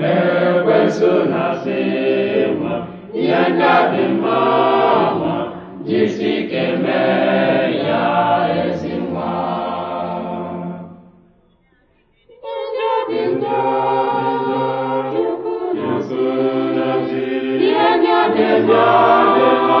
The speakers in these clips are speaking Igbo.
mere ekwensu na-asị ihe ndị dị mma nwa jisi ike mee ya ezi nwa ihe ndị a nke mma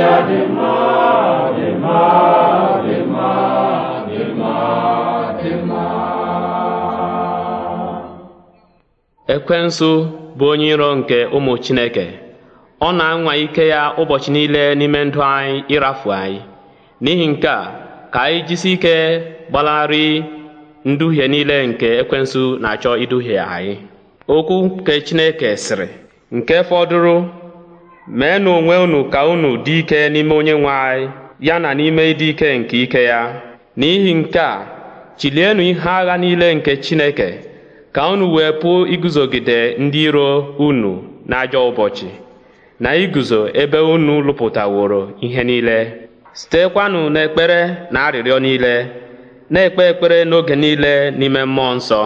ekwensụ Ekwensu bụ onye iro nke ụmụ Chineke. Ọ na-anwa ike ya ụbọchị niile n'ime ndụ anyị ịrafu anyị. N'ihi nke a, ka anyị jisi ike gbalarị nduhie niile nke ekwensu na-achọ iduhie anyị. Okwu nke Chineke sịrị, nke fọdụrụ meenụ onwe unu ka unu dị ike n'ime onye anyị ya na n'ime ịdị ike nke ike ya n'ihi nke a chilienụ ihe agha niile nke chineke ka unu wee pụọ iguzogide ndị iro unu n'ajọ ụbọchị na iguzo ebe unu lụpụtaworo ihe niile sitekwanụ n'ekpere na arịrịọ niile na-ekpe ekpere n'oge niile n'ime mmụọ nsọ